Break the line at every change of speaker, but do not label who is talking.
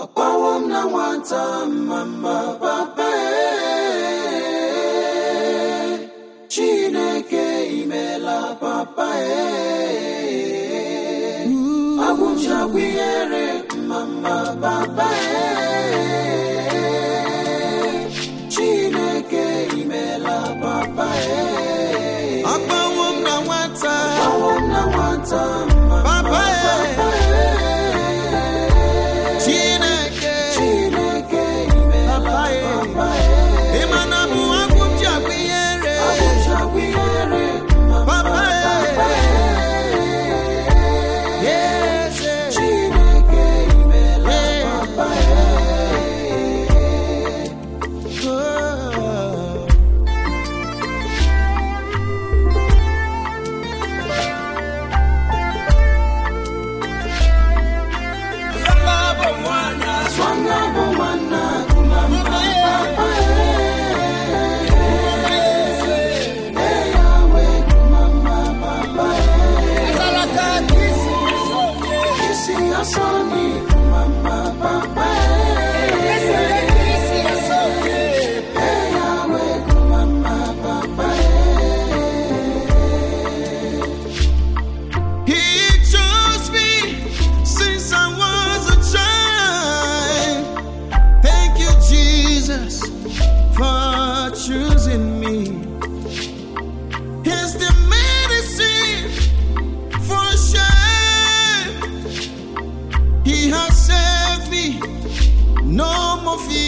ọkpawo m na nwata mma papa ee chineke imela papa ee abụ m mma mama papa Yeah.
saw me, mama,
confie.